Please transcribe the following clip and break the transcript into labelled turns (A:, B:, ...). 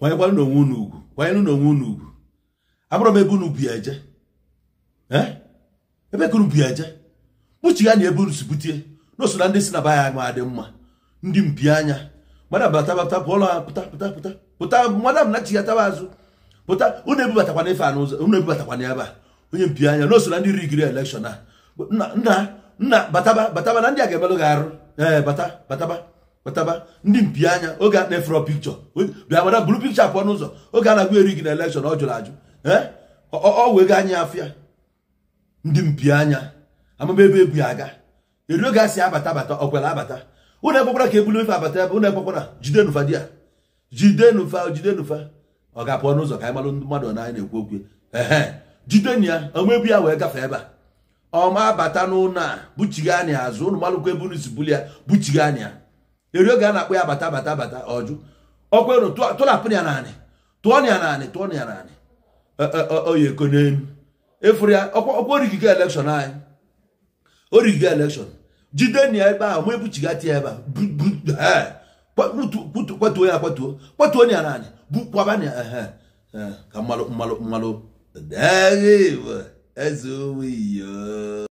A: kwanyekwanụ n'onwe unu ugwu kwanyenụ n'onwe unu ugwu abụrụ m ebe unu bi eje eh? ebe ka unu bi eje kpuchigha na ebe unu si butie na na ndị si na ba ma dị mma ndị mpi anya madam batabata pụọ ụlọ ha pụta pụta pụta pụta madam na chigataba azụ pụta unu ebubatakwana ife a n'ụzọ unu ebubatakwana ebe a onye mpi anya na na ndị rigiri elekshọn a nna nna bataba bataba na ndị a ga-emelụ gị arụ ee eh, bata bataba kpataba ndị mpi anya oge a na-efere pikchọ bịa mara buru pikchọ apụ ọnụ oge a na eri gị na elekshọn ọ jụrụ ajụ ọ wee ga anya afịa ndị mpi anya amaba ebe ebu aga eri oge a si abata abata ọkwere abata ụlọ ekwekwara ka ebulu ife abata ebe ụnụ ekwekwara jide nụfa di ya jide nụfa jide nụfa ọ ga-apụ ọnụ ka anyị malụ mmadụ ọ na ekwu okwu ehe jide ya ọma ebu ya wee gafee ebe a ọma abata n'ụlọ a buchigha anya azụ ụlọ malụkwa ebe unu si buli ya buchigha anya eri ga a na ya bata bata bata ọjụ ọkwa tụrapụ ya naanị tụọ ya naanị tụọ ya naanị oyeko n'elu efuru ya ọkwa origigo elekshọn anyị elekshọn jide ya ebe ahụ ma ebuchiga tie ebe a kwatuo ya kwatuo kwatuo ya naanị bukwaba ya ka mmalụ mmalụ mmalụ